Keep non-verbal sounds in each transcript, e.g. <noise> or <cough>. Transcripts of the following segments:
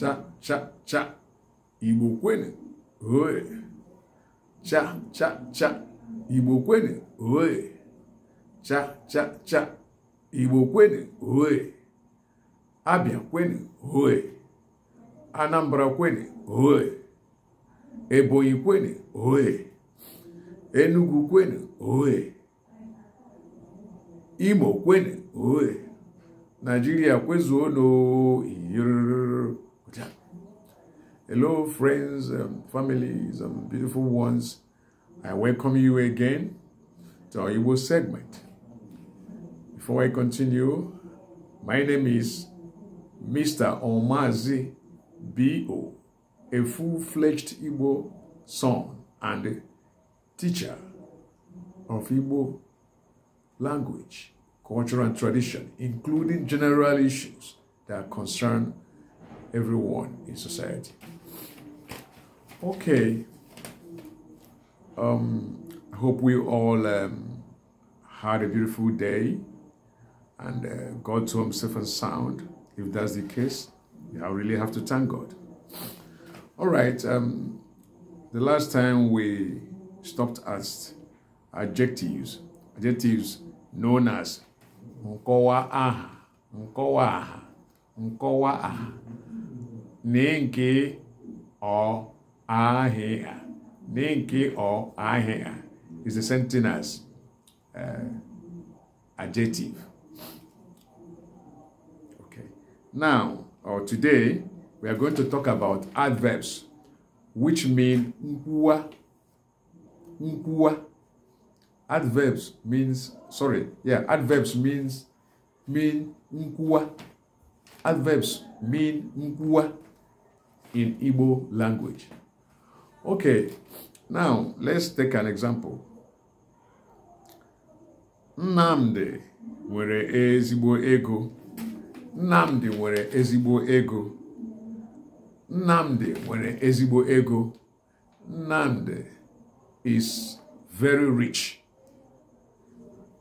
cha cha cha igbo kwene oe cha cha cha igbo kwene oe cha cha cha igbo kwene oe abịa kwene oe anambra kwene oe ebonyi kwene oe enugu kwene oe imo kwene oe naijiria kwezuo n'oe Hello, friends, um, families, and beautiful ones. I welcome you again to our Igbo segment. Before I continue, my name is Mr. Omazi B.O., a full-fledged Igbo son and teacher of Igbo language, culture, and tradition, including general issues that concern everyone in society. Okay. Um, I hope we all um, had a beautiful day and uh, God to himself and sound. If that's the case, I really have to thank God. All right. Um, the last time we stopped at adjectives, adjectives known as nkowa aha, nkowa aha, nkowa aha, ninki or ahịa Ninki or ahịa is the same thing as uh, adjective. Okay. Now, or today, we are going to talk about adverbs which mean nkwa. Nkwa. Adverbs means sorry, yeah, adverbs means mean nkwa. Adverbs mean nkwa in Igbo language. Okay, now let's take an example. Namde, nwere ezibo ego. Namde, nwere ezibo ego. Namde, nwere ezibo ego. Namde is very rich.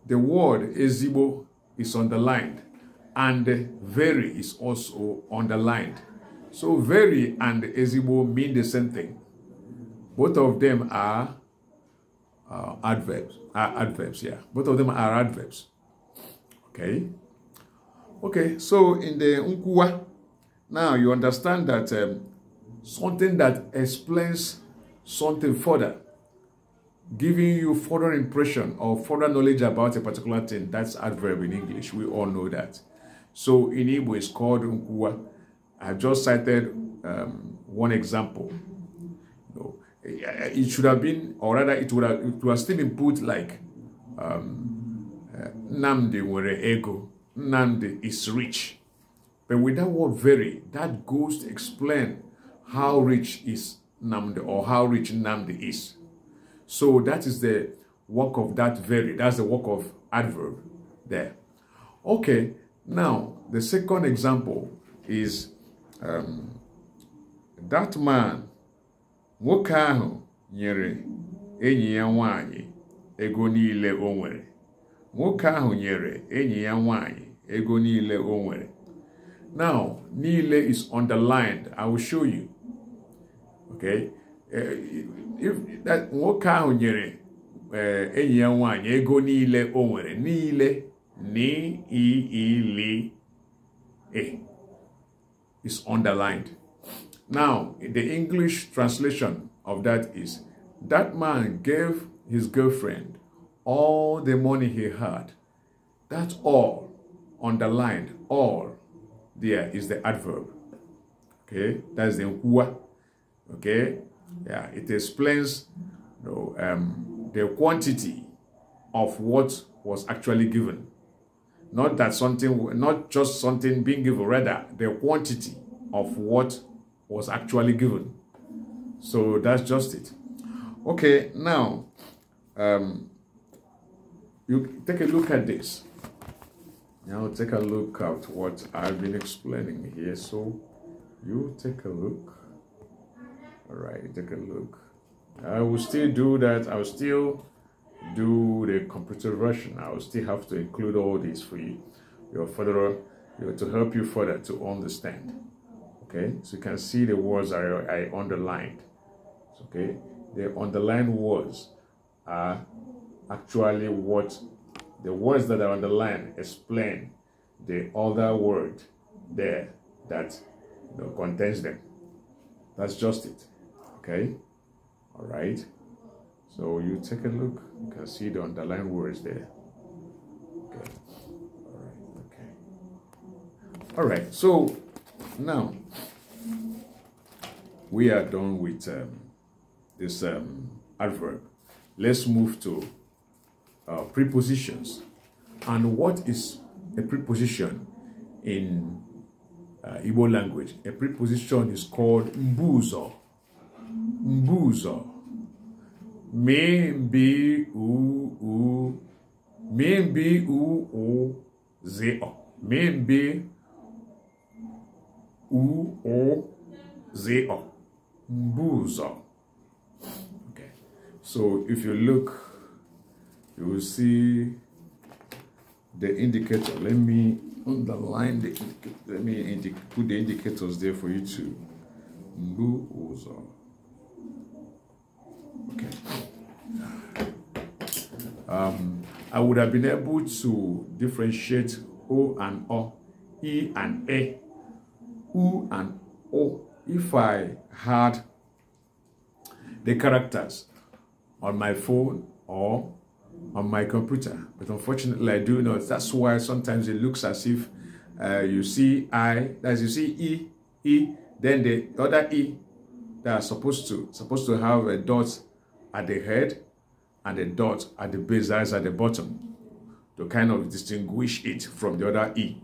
The word ezibo is underlined and very is also underlined. So very and ezibo mean the same thing. Both of them are uh, adverbs. Are adverbs, yeah. Both of them are adverbs. Okay. Okay, so in the unkuwa, now you understand that um, something that explains something further, giving you further impression or further knowledge about a particular thing, that's adverb in English. We all know that. So in Igbo, it's called unkuwa. I just cited um, one example it should have been, or rather, it would have, it would have still been put like um, eh, Namde were ego, Namde is rich. But with that word very, that goes to explain how rich is Namde or how rich Namde is. So that is the work of that very, that's the work of adverb there. Okay, now the second example is um, that man nwoke ahụ nyere enyi ya nwanyị ego niile o nwere nwoke ahụ nyere enyi ya nwanyị ego niile o nwere now niile is underlined i will show you okay eh, if that nwoke ahụ nyere eh, enyi ya nwanyị ego niile o nwere niile niile is underlined Now, the English translation of that is that man gave his girlfriend all the money he had. That's all underlined. All there is the adverb. Okay, that's the what. Okay, yeah, it explains you know, um, the quantity of what was actually given. Not that something, not just something being given, rather the quantity of what was actually given. So that's just it. Okay, now um, you take a look at this. Now take a look at what I've been explaining here. So you take a look. All right, take a look. I will still do that. I will still do the computer version. I will still have to include all this for you, your further, your, to help you further to understand okay so you can see the words I, I underlined okay the underlined words are actually what the words that are underlined explain the other word there that you know, contains them that's just it okay all right so you take a look you can see the underlined words there okay all right okay all right so now, we are done with um, this um, adverb. Let's move to uh, prepositions. And what is a preposition in uh, Igbo language? A preposition is called mbuzo. Mbuzo. Me mbi u u. Me mbi u u ze o. Me mbi Uozo. Buzo. Okay. So if you look, you will see the indicator. Let me underline the let me put the indicators there for you to Buzo. Okay. Um, I would have been able to differentiate O and O, E and A who and oh if I had the characters on my phone or on my computer. But unfortunately, I do not. That's why sometimes it looks as if uh, you see I, as you see E, E, then the other E that are supposed to supposed to have a dot at the head and a dot at the base, eyes at the bottom to kind of distinguish it from the other E.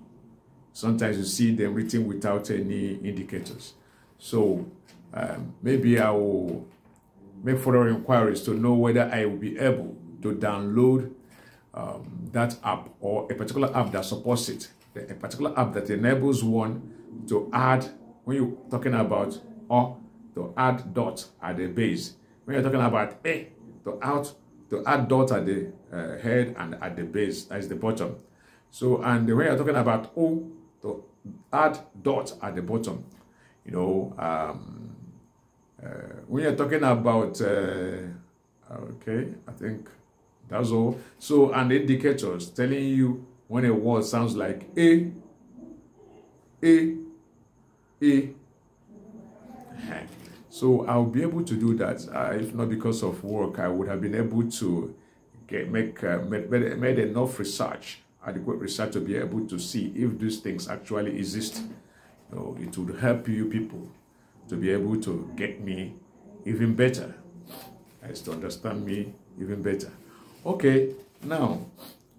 Sometimes you see them written without any indicators. So um, maybe I will make further inquiries to know whether I will be able to download um, that app or a particular app that supports it, a particular app that enables one to add, when you're talking about or to add dot at the base, when you're talking about A, to add, to add dot at the uh, head and at the base, that is the bottom. So, and when you're talking about O, so add dot at the bottom. You know, um, uh, when you're talking about, uh, okay, I think that's all. So an indicator is telling you when a word sounds like A, A, A. <laughs> So I'll be able to do that. Uh, if not because of work, I would have been able to get, make uh, made enough research adequate research to be able to see if these things actually exist. it would help you people to be able to get me even better, as to understand me even better. Okay, now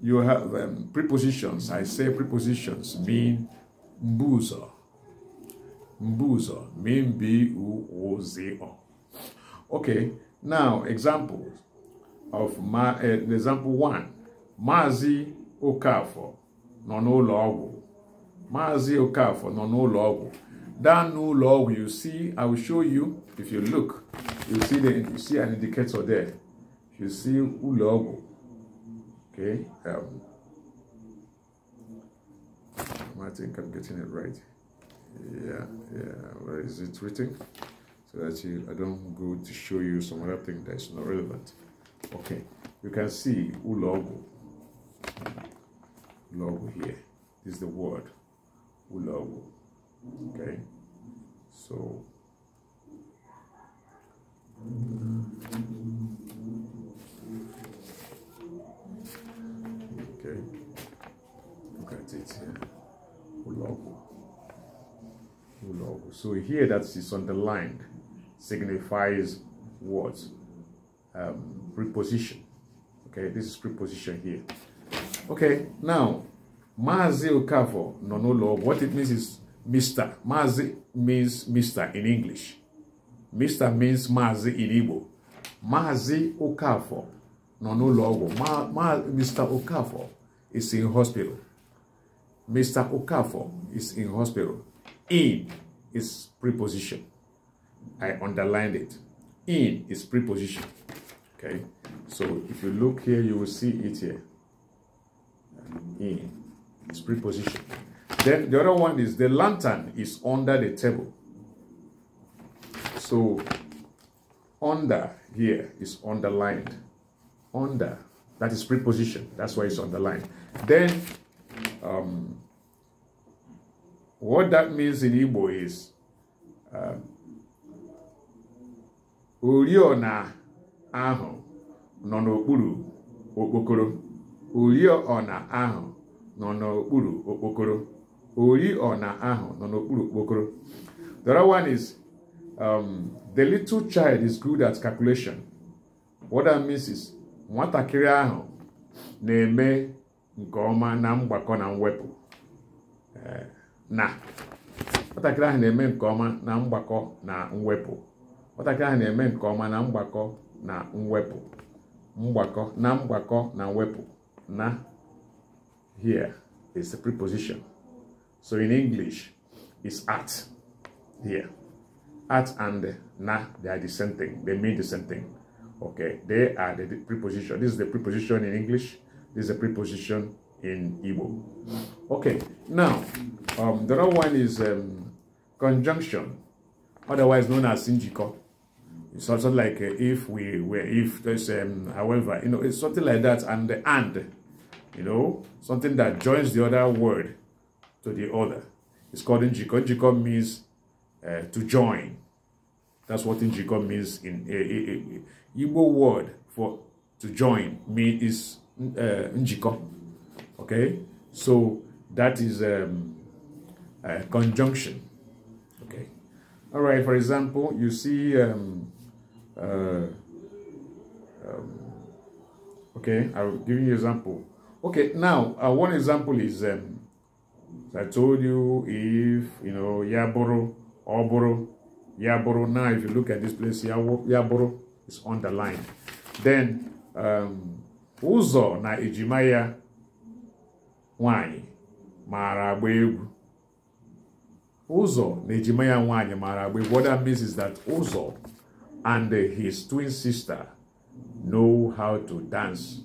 you have um, prepositions. I say prepositions mean mbuzo. Mbuzo mean B-U-O-Z-O. Okay, now examples of my uh, example one. Mazi Okafọ nọ n'ụlọ ọgwụ Maazị Okafọ nọ n'ụlọ ọgwụ down n'ụlọ ọgwụ you see I will show you if you look you see the you see an indicator there you see ụlọ ọgwụ okay um, I think I'm getting it right yeah yeah where is it written so that I don't go to show you some other thing that's not relevant okay you can see ụlọ logo here. This is the word logo. Okay, so okay, look at it here. Logo. Logo. So here that is underlined signifies what um, preposition. Okay, this is preposition here. Okay, now, Mazi Okafo no no law. What it means is Mr. Mazi means Mr. in English. Mr. means Mazi in Igbo. Mazi Okafo no no law. Ma, ma, Mr. Okafo is in hospital. Mr. Okafo is in hospital. In is preposition. I underlined it. In is preposition. Okay, so if you look here, you will see it here in. It's preposition. Then the other one is the lantern is under the table. So under here is underlined. Under. That is preposition. That's why it's underlined. Then um, what that means in Igbo is uh, oriọna ahụ nono n'okpuru okpokoro ọna ahụ nọ n'okpuru okpokoro ọna ahụ nọ n'okpuru okpokoro the other one is um, the little child is good at calculation what that means is nwatakịrị ahụ na-eme nke ọma na mgbakọ na mwepụ nwatakịrị ahụ na-eme nke ọma na mgbakọ na mwepụ mgbakọ na mgbakọ na mwepụ na here is the preposition. So in English, it's at here. At and na, they are the same thing. They mean the same thing. Okay, they are the preposition. This is the preposition in English. This is the preposition in Igbo. Okay, now, um, the other one is um, conjunction, otherwise known as injiko. It's also like uh, if we were, if there's, um, however, you know, it's something like that. And the and you know, something that joins the other word to the other. It's called njiko. Njiko means uh, to join. That's what njiko means in a, a, a Igbo word for to join means is uh, njiko. Okay, so that is um, a conjunction. Okay, all right. For example, you see. Um, uh, um, okay, I'll give you an example. Okay, now uh, one example is um, I told you if you know Yaboro, Oboro, Yaboro. Now, if you look at this place, Yaboro is underlined. Then um, Uzo na Ejimaya Wanyi Mara Uzo na Ejimaya Wanyi Mara What that means is that Uzo and his twin sister know how to dance.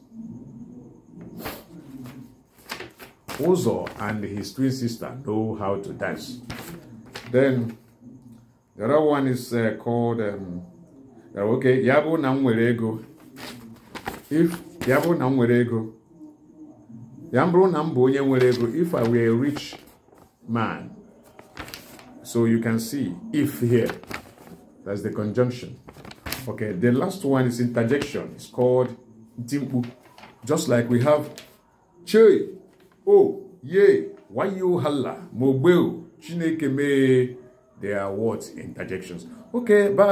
Uzo and his twin sister know how to dance. Then the other one is uh, called, um, okay, Namwerego. If Namwerego, Yambro Nambo if I were a rich man, so you can see if here, that's the conjunction. Okay, the last one is interjection. It's called Just like we have o ye Why halla mogbe Mobile? chineke They are words interjections okay bye